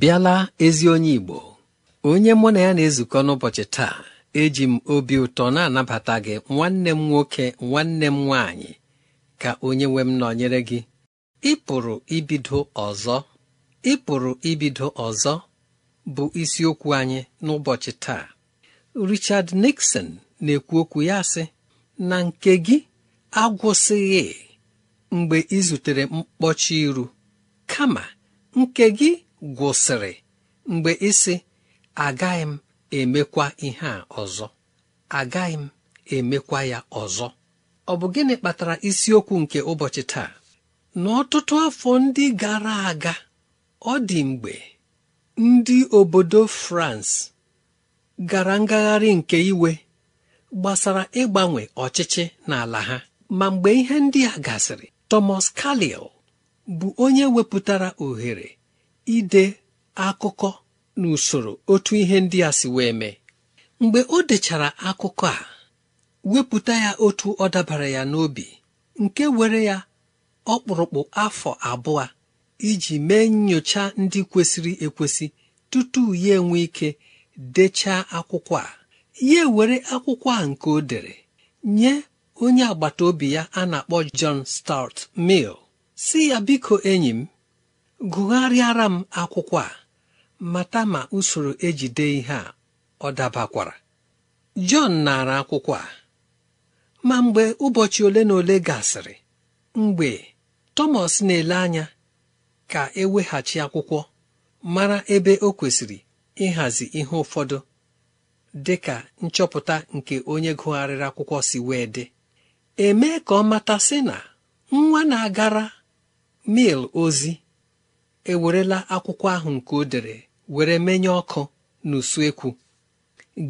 bịala ezi onye Igbo onye mụ na ya na-ezukọ n'ụbọchị taa eji m obi ụtọ na-anabata gị nwanne m nwoke nwanne m nwaanyị ka onye nwe m nọnyere gị Ịpụrụ ibido ọzọ Ịpụrụ ibido ọzọ bụ isiokwu anyị n'ụbọchị taa Richard Nixon na-ekwu okwu ya sị na nke gị agwụsịghị mgbe ị zutere mkpọchi iru kama nke gị gwụsịrị mgbe ịsị agaghị m emekwa ihe a ọzọ agaghị m emekwa ya ọzọ ọ bụ gịnị kpatara isiokwu nke ụbọchị taa n'ọtụtụ afọ ndị gara aga ọ dị mgbe ndị obodo France gara ngagharị nke iwe gbasara ịgbanwe ọchịchị n'ala ha ma mgbe ihe ndị a gasịrị Thomas Carlyle bụ onye wepụtara ohere ide akụkọ n'usoro otu ihe ndị a si wee mee mgbe o dechara akụkọ a wepụta ya otu ọ dabara ya n'obi nke were ya ọkpụrụkpụ afọ abụọ iji mee nyocha ndị kwesịrị ekwesị tutu ya enwe ike dechaa akwụkwọ a ya were akwụkwọ a nke o dere nye onye agbata obi ya a na-akpọ John Stuart mil si ya biko enyi m gụgharịara m akwụkwọ a mata ma usoro ejide ihe a ọ dabakwara Jọn nara akwụkwọ a ma mgbe ụbọchị ole na ole gasịrị mgbe tomas na-ele anya ka eweghachi akwụkwọ mara ebe o kwesịrị ịhazi ihe ụfọdụ dị ka nchọpụta nke onye gụgharịrị akwụkwọ si wee dị emee ka ọ mata sị na nwa na-agara mil ozi ewerela akwụkwọ ahụ nke o dere were menye ọkụ n'usuekwu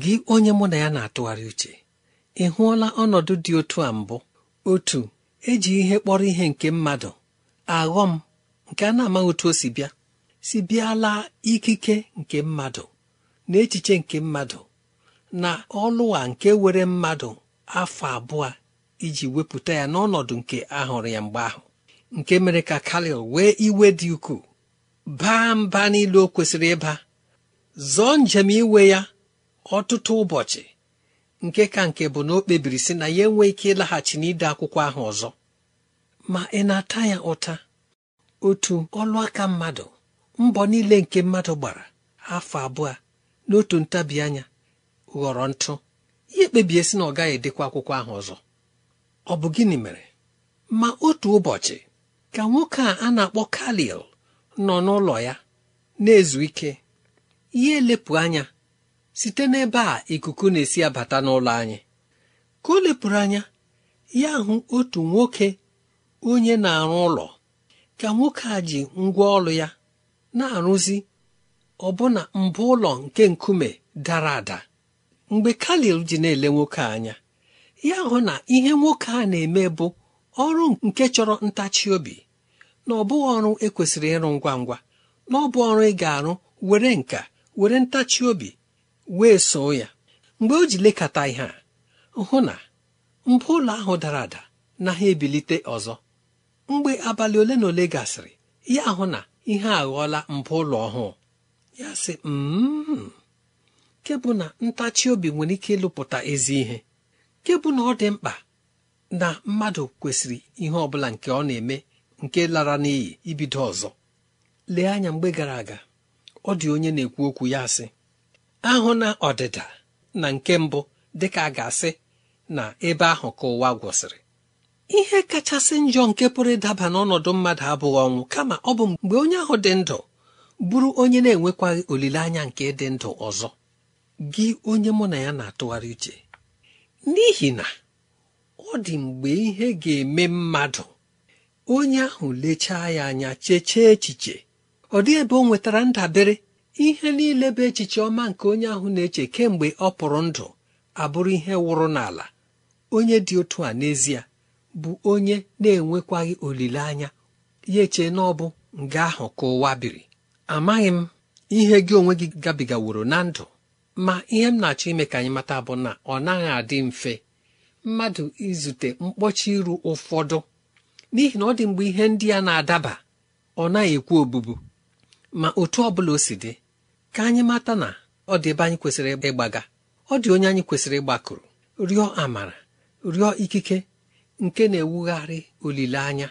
gị onye mụ na ya na-atụgharị uche ị hụọla ọnọdụ dị otu a mbụ otu eji ihe kpọrọ ihe nke mmadụ aghọm nke a na-amaghị otu o si bịa si bịala ikike nke mmadụ na echiche nke mmadụ na ọlụwa nke were mmadụ afọ abụọ iji wepụta ya n'ọnọdụ nke ahụrụ ya mgbe ahụ nke mere ka kalil wee iwe dị ukwuu baa mba niile o kwesịrị ịba zọọ njem iwe ya ọtụtụ ụbọchị nke ka nke bụ na o kpebiri sị na ya enwe ike ịlaghachi n'ide akwụkwọ ahụ ọzọ ma ị na-ata ya ụta otu ọlụaka mmadụ mbọ niile nke mmadụ gbara afọ abụọ n'otu ntabi anya ghọrọ ntụ ihe kpebie sị na ọ gaghị edekwa akwụkwọ ahụ ọzọ ọ bụ gịnị mere ma otu ụbọchị ka nwoke a a na-akpọ kalil nọ n'ụlọ ya na-ezu ike ihe elepụ anya site n'ebe a ikuku na-esi abata n'ụlọ anyị ka o lepụrụ anya ya hụ otu nwoke onye na-arụ ụlọ ka nwoke a ji ngwa ọrụ ya na-arụzi ọbụna mbụ ụlọ nke nkume dara ada mgbe kalil ji na-ele nwoke anya ya hụ na ihe nwoke a na-eme bụ ọrụ nke chọrọ ntachi obi na ọ bụghị ọrụ ekwesịrị ịrụ ngwa ngwa na ọ bụ ọrụ ị ga-arụ were nka were ntachi obi wee soo ya mgbe o ji lekọta ihe a hụ na mbụ ụlọ ahụ dara ada na ha ebilite ọzọ mgbe abalị ole na ole gasịrị ya hụ na ihe aghọọla mbụ ụlọ ọhụụ ya sị m mm-hmm. nke na ntachi obi nwere ike ịlụpụta ezi ihe kebụ na ọ dị mkpa na mmadụ kwesịrị ihe ọ bụla nke ọ na-eme nke lara n'iyi ibido ọzọ lee anya mgbe gara aga ọ dị onye na-ekwu okwu ya sị ahụ na ọdịda na nke mbụ ka a ga-asị na ebe ahụ ka ụwa gwụsịrị ihe kachasị njọ nke pụrụ ịdaba n'ọnọdụ mmadụ abụghị ọnwụ kama ọ bụ mgbe onye ahụ dị ndụ bụrụ onye na-enwekwaghị olileanya nke dị ndụ ọzọ gị onye mụ na ya na-atụgharị uche n'ihi na ọ dị mgbe ihe ga-eme mmadụ onye ahụ lechaa ya anya cheche echiche ọ dị ebe ọ nwetara ndabere ihe niile bụ echiche ọma nke onye ahụ na-eche kemgbe ọ pụrụ ndụ abụrụ ihe wụrụ n'ala onye dị otu a n'ezie bụ onye na-enwekwaghị olileanya ya eche na ọ bụ nga ahụ ka ụwa biri amaghị m ihe gị onwe gị gabigaworo na ndụ ma ihe m na-achọ ime ka anyị mata bụ na ọ naghị adị mfe mmadụ izute mkpọchi iru ụfọdụ n'ihi na ọ dị mgbe ihe ndị a na-adaba ọ naghị ekwu obubu ma otu ọ bụla o si dị ka anyị mata na ọ dị ebe anyị kwesịrị ịgbaga ọ dị onye anyị kwesịrị ịgbakụrụ rịọ amara rịọ ikike nke na-ewugharị olileanya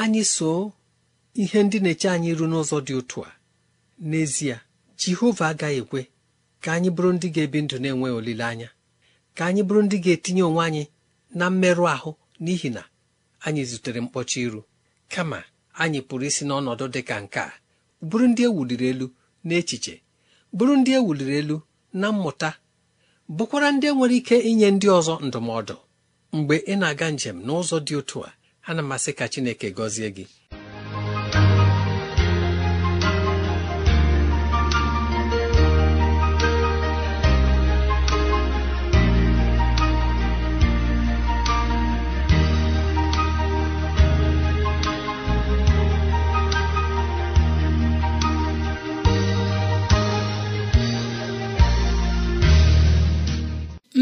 anyị so ihe ndị na-eche anyị iru n'ụzọ dị otu a n'ezie jehova agaghị ekwe ka anyị bụrụ ndị ga-ebi ndụ na-enweghị olileanya ka anyị bụrụ ndị ga-etinye onwe anyị na mmerụ ahụ n'ihi na anyị zutere mkpọcha iru kama anyị pụrụ isi n'ọnọdụ dị ka nke a bụrụ ndị ewuliri elu echiche bụrụ ndị ewuliri elu na mmụta bụkwara ndị enwere ike inye ndị ọzọ ndụmọdụ mgbe ị na-aga njem n'ụzọ dị otu a ana m asị ka Chineke gọzie gị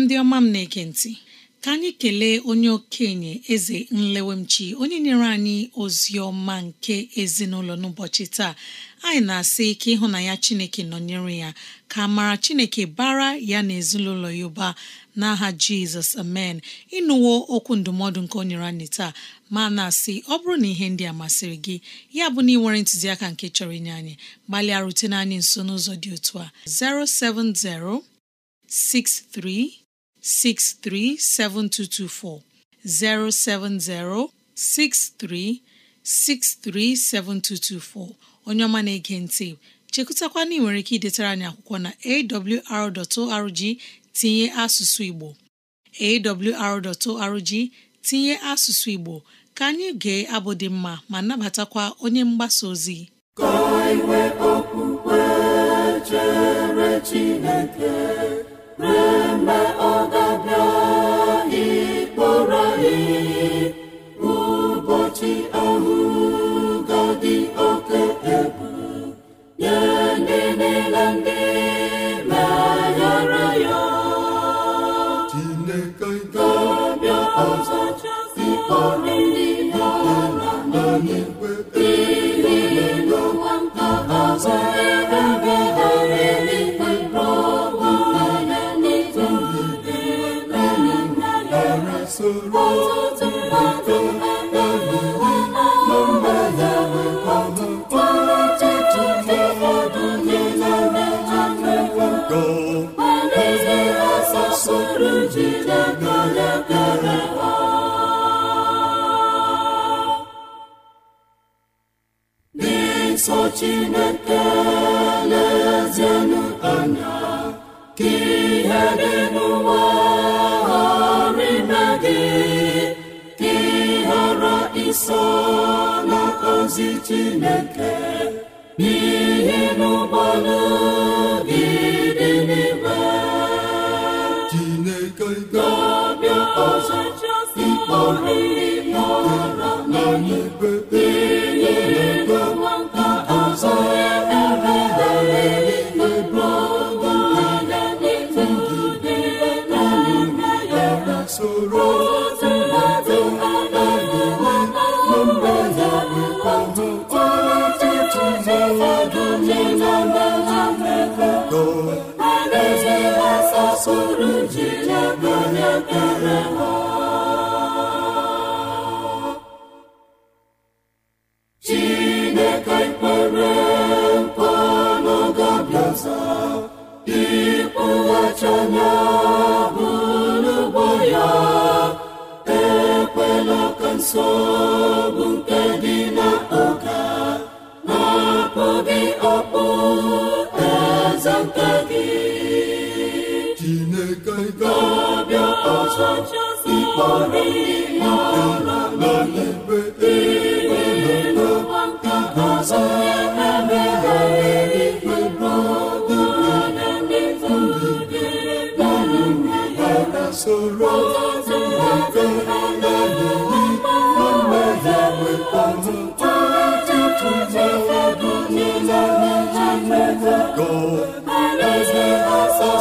ndị ọma m na-ege ntị ka anyị kelee onye okenye eze nlewemchi onye nyere anyị ozi ọma nke ezinụlọ n'ụbọchị taa anyị na-asị ike ịhụ na ya chineke nọnyere ya ka mara chineke bara ya na ezinụlọ ya ụba n'aha jizọs amen ịnụwo okwu ndụmọdụ nke o nyere anyị taa ma na-asị ọ bụrụ na ihe ndị a masịrị gị ya bụ na ị nwere ntụziaka nke chọrọ inye anyị gbalịa rutene anyị nso n'ụzọ dị otu a 070 63 637224 070 63637224 onye ọma na-ege ntị chekụtakwa na ị nwere ike idetara anyị akwụkwọ na awr.org tinye asụsụ Igbo awr.org tinye asụsụ Igbo ka anyị gee abụ dị mma ma nabatakwa onye mgbasa ozi ka eme ọ ga-abịa ịkpọrọ anyị ụbọchị ọrụ ga-adị oke ya ndị ndị niile ndị meghara ya Chineke ga-abịa ọzọ ndị ha na n'ụwa chineke onye kere ha nke chineke lezienụ anya ka ihe dị n'ụwa ghara chineke n'ihi n'ụgbalị Soro ikpọrọ ndị n'ala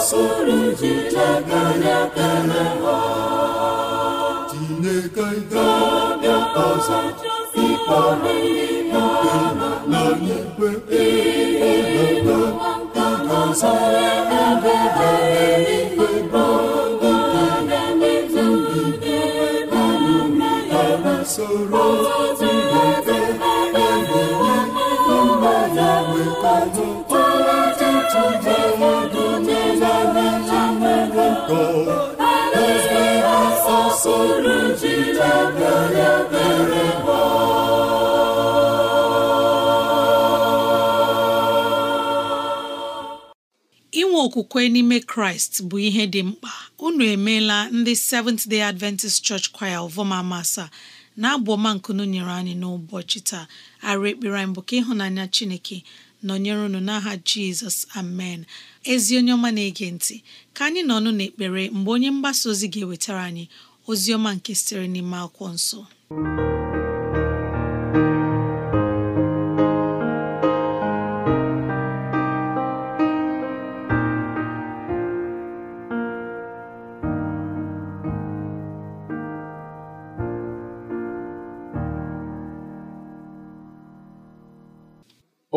soro Chineke na-ekele ha Chineke ga-abịa ọzọ ịkpọrọ ihe n'igwe ịhụnata ịgazara ebe dara eluigwe bụ nke na-emetụgide n'ụlọ ya soro Chineke na-enye ihe mmadụ wetara inwe okwukwe n'ime kraịst bụ ihe dị mkpa unu emeela ndị Seventh Day Adventist Church Choir Ovoma masa na abụ ọma nyere anyị n'ụbọchị taa arụ ekpere anyị bụ ka ịhụnanya chineke nọnyere unu n'aha jizọs amen ezi onye ọma na-ege ntị ka anyị nọ ọnụ n'ekpere mgbe onye mgbasa ozi ga-ewetara anyị ozi ọma nke sitere n'ime akwụkwọ nsọ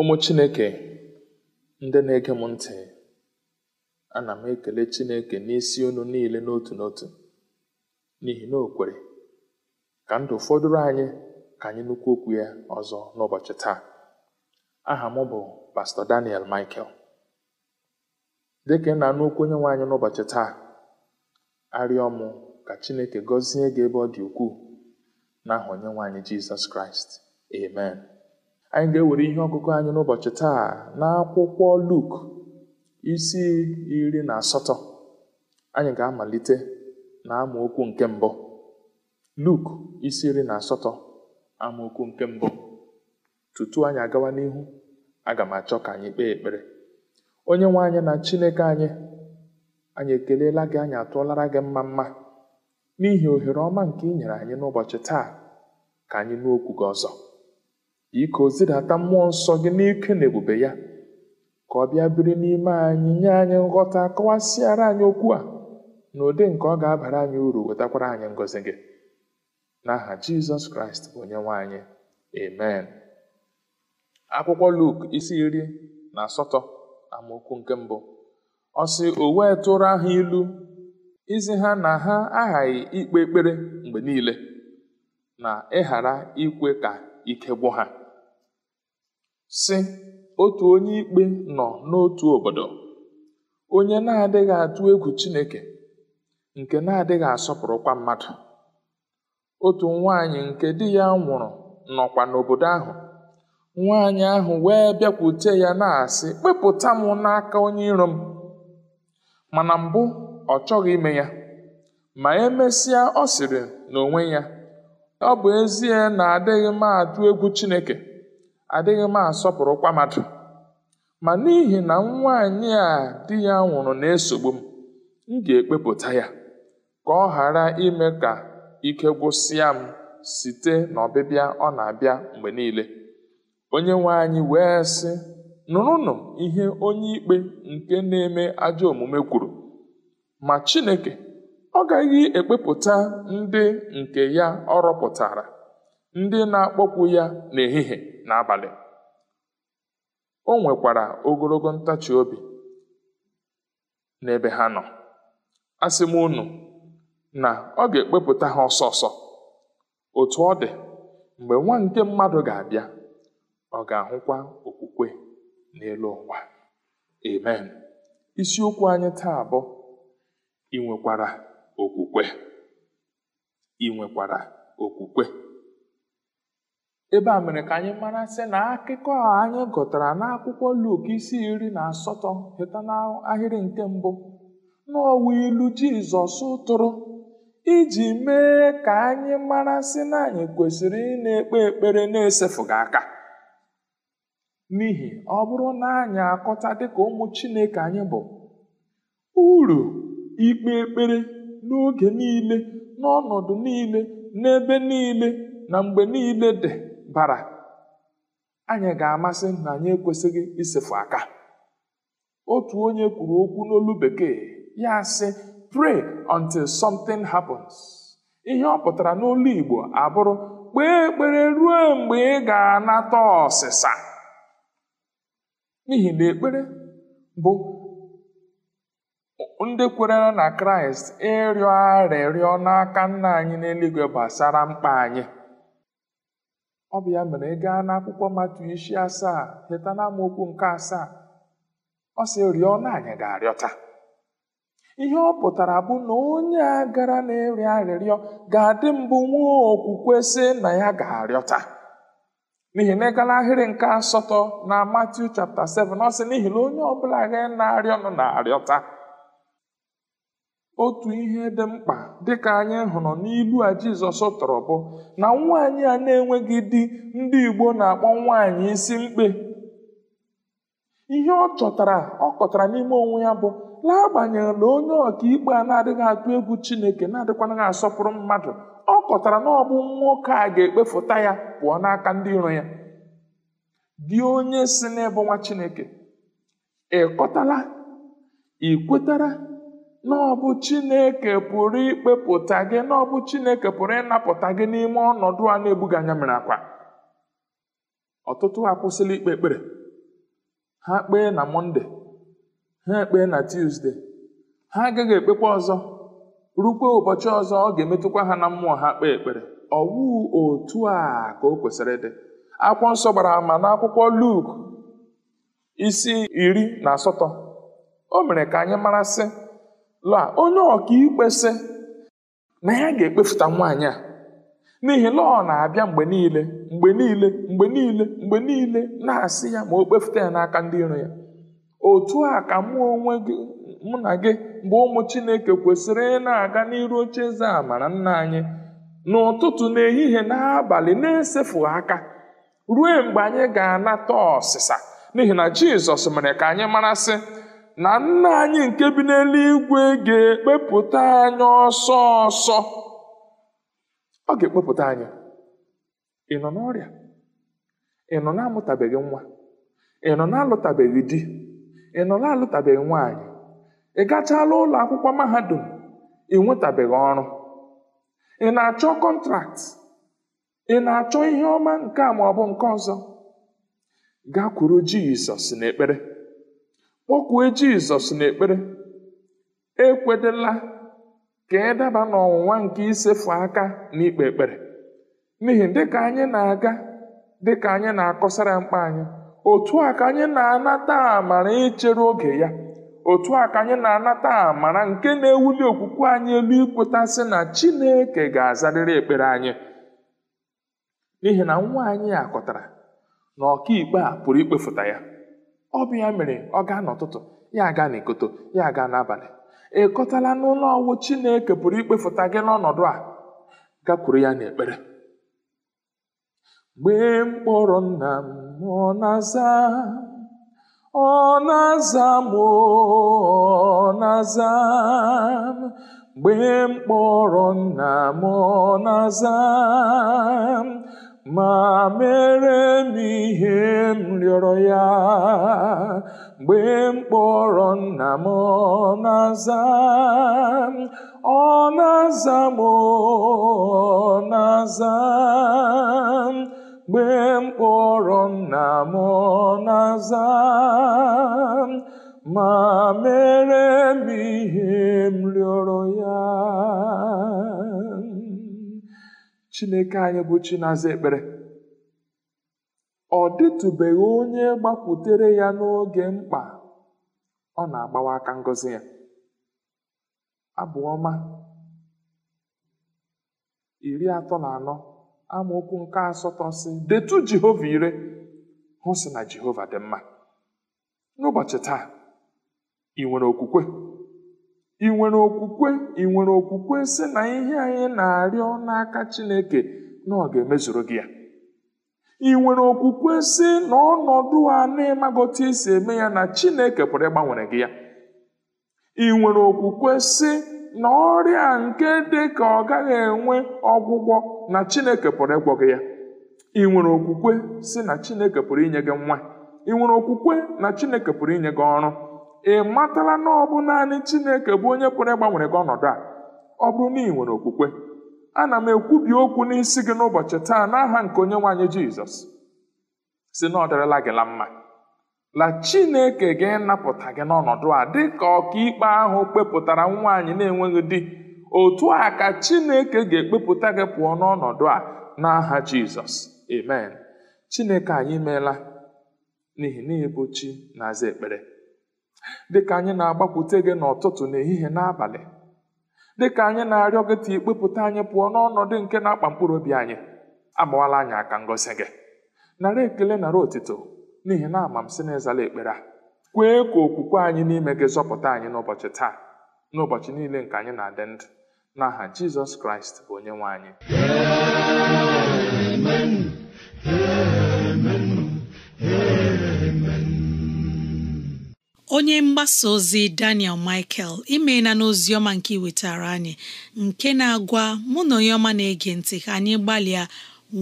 Ụmụ Chineke ndị na-ege m ntị ana m ekele Chineke n'isi unu niile n'otu n'otu n'ihi na o ka ndụ fọdụrụ anyị ka anyị nnukwu okwu ya ọzọ n'ụbọchị taa aha m bụ Pastọ Daniel Michael dị ka ị na-anụ okwu onye nwe n'ụbọchị taa arịọ m ka Chineke gọzie gị ebe ọ dị ukwuu n'aha onye nwe Jizọs Kraịst amen anyị ga-ewere ihe ọgụgụ anyị n'ụbọchị taa n'akwụkwọ Luk isi iri na asatọ anyị ga-amalite na amaokwu nke mbụ Luk isi iri na asatọ amaokwu nke mbụ tutu anyị agawa n'ihu aga m achọ ka anyị kpee ekpere onye nwe anyị na Chineke anyị anyị ekeleela gị anyị atụọlara gị mma mma n'ihi ohere ọma nke ị nyere anyị n'ụbọchị taa ka anyị nụ okwu gị ọzọ ike o zidata mmụọ nsọ gị n'ike na ebube ya ka ọ bịa biri n'ime anyị nye anyị nghọta kọwasịara anyị okwu a na ụdị nke ọ ga-abara anyị uru wetakwara anyị ngọzi gị n'aha jizọs kraịst bụ onye anyị amen akwụkwọ luk isi iri na asatọ amaokwu nke mbụ ọ sị o wee tụrụ ha ilu izi ha na ha aghaghị ikpe ekpere mgbe niile na ịghara ikwe ka ike gwụ ha sị otu onye ikpe nọ n'otu obodo onye na-adịghị atụ egwu chineke nke na-adịghị asọpụrụkwa mmadụ otu nwaanyị nke di ya nwụrụ nọkwa n'obodo ahụ nwaanyị ahụ wee bịakwute ya na-asị kpepụta m n'aka onye iro m mana mbụ ọ chọghị ime ya ma emesịa ọ sịrị n'onwe ya ọ bụ ezie na adịghị m atụ egwu chineke adịghị m asọpụrụ mmadụ ma n'ihi na nwaanyị a di ya nwụrụ na-esogbu m m ga-ekpepụta ya ka ọ ghara ime ka ike gwụsịa m site n'ọbịbịa ọ na-abịa mgbe niile onye nwe anyị wee sị nụrụnụ ihe onye ikpe nke na-eme ajọ omume kwuru ma Chineke ọ gaghị ekpepụta ndị nke ya ọ rọpụtara ndị na-akpọkwu ya n'ehihie n'abalị. O nwekwara ogologo ntachi obi n'ebe ha nọ. Asị m unu na ọ ga-ekpepụta ha ọsọ ọsọ. otu ọ dị, mgbe nwa nke mmadụ ga-abịa, ọ ga-ahụkwa okwukwe n'elu ụwa. Amen. Isiokwu anyị taa abụọ ị nwekwara okwukwe. Ị nwekwara okwukwe. ebe a mere ka anyị mara sị na akụkọ anyị gụtara n'akwụkwọ Luk isi iri na asatọ heta n'ahịrị nke mbụ n'ọwa ilu Jizọs tụrụ iji mee ka anyị mara sị na anyị kwesịrị ị na-ekpe ekpere na-esefụghị aka n'ihi ọ bụrụ na anyị akọta dịka ụmụ Chineke anyị bụ uru ikpe ekpere n'oge niile n'ọnọdụ niile n'ebe niile na mgbe niile dị bara anyị ga-amasị na anyị ekwesịghị isefu aka otu onye kwuru okwu n'olu bekee ya sị pray until something happens ihe ọ pụtara n'olu Igbo abụrụ kpee ekpere ruo mgbe ị ga-anata ọsịsa n'ihi na ekpere bụ ndị kwerere na Kraịst ịrịọ arịrịọ n'aka nna anyị n'eluigwe gbasara mkpa anyị ọ bụ ya mere ị gaa n'akwụkwọ matu isi asaa heta na amaokwu nke asaa ọ sị rịọ na ga-arịọta ihe ọ pụtara bụ na onye a gara na-arịọ arịrịọ ga-adị mbụ nwa okwukwe sị na ya ga-arịọta n'ihi na ịgala ahịrị nke asatọ na Matiu chapta 7 ọ sị n'ihi na onye ọbụla gị na-arịọ nọ na-arịọta otu ihe dị mkpa dịka anyị hụrụ n'ilu a Jizọs tọrọ bụ na nwaanyị a na-enweghị di ndị Igbo na-akpọ nwaanyị isi mkpe ihe ọ chọtara ọ kọtara n'ime onwe ya bụ n'agbanyeghị na onye ọkaikpe a na-adịghị atụ egwu Chineke na-adịkwanaghị asọpụrụ mmadụ ọ kọtara na ọ bụ nwoke a ga-ekpefụta ya pụọ n'aka ndị iro ya dị onye si n'ebe nwa Chineke ị kọtala ị kwetara n'ọbụ chineke pụrụ ikpepụta gị n'ọbụ chineke pụrụ ịnapụta gị n'ime ọnọdụ a na ebuga anya mere akwa ọtụtụ akwụsịla ikpe ekpere ha kpee na mọnde ha ekpee na tuzdee ha agaghị ekpekwa ọzọ rukwe ụbọchị ọzọ ọ ga-emetụkwa ha na mmụọ ha kpee ekpere ọwụ otu a ka o kwesịrị dị akwụkwọ nsọ gbara ama akwụkwọ Luk isi iri na asatọ o mere ka anyị mara sị la onye ikpe sị na ya ga-ekpefuta nwaanyị a n'ihi lọọ na-abịa mgbe niile mgbe niile mgbe niile mgbe niile na-asị ya ma o kpefuta ya n'aka ndị iro ya otu a ka mụ onwe gị mụ na gị bụ ụmụ chineke kwesịrị ị na-aga n'iru oche eze amara nna anyị n'ụtụtụ n'ehihie n'abalị na-esefu aka ruo mgbe anyị ga-anata ọsịsa n'ihi na jizọs mere ka anyị mara sị na nna anyị nke bi n'eluigwe ga-ekpepụta anyị ọsọ ọsọ ọ ga-ekpepụta anya. ị nọ n'ọrịa ị nọ na nwa ị nọ na-alụtabeghị di ị nọ na-alụtabeghị nwaanyị ị gachala ụlọ akwụkwọ mahadum ị nwetabeghị ọrụ ị na-achọ kọntraktị ị na-achọ ihe ọma nke a ma ọ nke ọzọ gakwuru jizọs n'ekpere kpọkwue jizọs n'ekpere ekwedela ka ị e daba n'ọnwụnwa nke isefu aka na ikpe ekpere n'ihi dịka anyị na-aga dịka anyị na-akọsara mkpa anyị otu a ka anyị na-anata amara ichere oge ya otu a ka anyị na-anata amara nke na-ewuli okwukwe anyị elu ikwetasị na chineke ga-azarịrị ekpere anyị n'ihi na nwa anyị akọtara na ọkaikpe a pụrụ ikpefụta ya ọ bụ ya mere ọ gaa n'ụtụtụ ya aga n'ikoto ya aga n'abalị ekọtala n'ụlọ ọwụ Chineke pụrụ ikpefụta gị n'ọnọdụ a gakwuru ya n'ekpere Gbe mkpụrụ nna m ọ na-aza ọ na-aza m ọ na-aza m nna m ọ na-aza ma mere m ihe m rịọrọ ya mgbe m kpọrọ nna m ọ na-aza m ọ na-aza m ọ na-aza m mgbe m kpọrọ nna m ọ na-aza m ma mere m ihe m rịọrọ ya Chineke anyị bụ Chinaza ekpere ọ dịtụbeghị onye gbakwutere ya n'oge mkpa ọ na-agbawa aka ngozi ya abụ ọma iri atọ na anọ amaokwu nke asatọ si detu Jehova ire hụ sị na Jehova dị mma n'ụbọchị taa ị nwere okwukwe ị nwere okwukwe ị nwere okwukwe si na ihe anyị na-arịọ n'aka chineke na ọ ga-emezuru gị ya ị nwere okwukwe sị na ọnọdụ a na-ịmagote isi eme ya na chineke pụrụ ịgbanwere gị ya ị nwere okwukwe sị na ọrịa nke dị ka ọ gaghị enwe ọgwụgwọ na chineke pụrụ ịgwọ gị ya ị nwere okwukwe si na chineke pụrụ inye gị nwa ị nwere okwukwe na chineke pụrụ inye gị ọrụ ị matala na ọ bụ naanị chineke bụ onye pụrụ ịgbanwere gị ọnọdụ a ọ bụrụ na ị nwere okwukwe ana m ekwubi okwu n'isi gị n'ụbọchị taa n'aha nke onye nwaanyị anyị jizọs si na ọ dịrịla gị la mma la chineke ga napụta gị n'ọnọdụ a dị ka ọkaikpe ahụ kpepụtara nwaanyị na-enweghị di otu a ka chineke ga-ekpepụta gị pụọ n'ọnọdụ a n'aha jizọs amen chineke anyị meela n'ihi na ịbụ na-aza ekpere dịka anyị na-agbakwute gị n'ụtụtụ n'ehihie n'abalị dịka anyị na-arịọ gị ka ikpepụta anyị pụọ n'ọnọdụ nke na-akpa mkpụrụ obi anyị agbawala anyị aka ngosi gị nara ekele nara otito n'ihi na ama m si na ịzala ekpere a kwee ka okwukwe anyị n'ime gị zọpụta anyị n'ụbọchị taa n'ụbọchị niile nke anyị na-adị ndụ n'aha jizọs kraịst bụ onye nwe anyị Amen. Amen. Amen. onye mgbasa ozi Daniel Michael imeela n'ozi ọma nke iwetara anyị nke na-agwa mụ na onye ọma na-ege ntị ka anyị gbalịa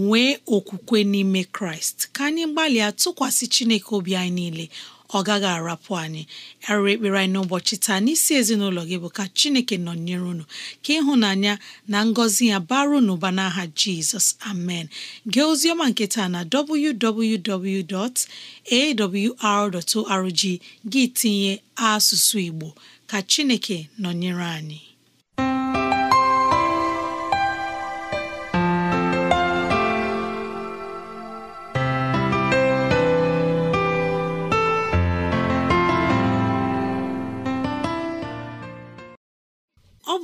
nwee okwukwe n'ime Kraịst ka anyị gbalịa tụkwasị Chineke obi anyị niile ọ gaghị arapụ anyị arịrị ekpere anyị n'ụbọchị taa n'isi ezinụlọ gị bụ ka Chineke nọnyere unu ka ịhụnanya na ngọzi ya bara n'ụba n'aha Jizọs amen gee ozioma nke taa na www.awr.org gị tinye asụsụ Igbo ka Chineke nọnyere anyị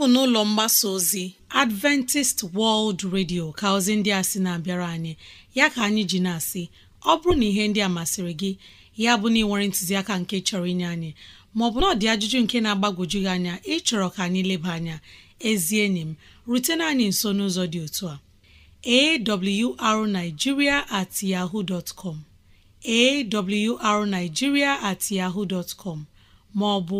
bụ n'ụlọ mgbasa ozi Adventist World Radio ka ozi ndị a sị na-abịara anyị ya ka anyị ji na-asị ọ bụrụ na ihe ndị a masịrị gị ya bụ na ị nwere ntụziaka nke chọrọ inye anyị maọbụ na ọ ajụjụ nke na agbagoju gị anya ịchọrọ ka anyị leba anya ezie enyi m rutena anyị nso n'ụzọ dị otu a awrnigeria at yahoo dot com awrnigeria at yaho dot com maọbụ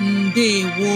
ndewo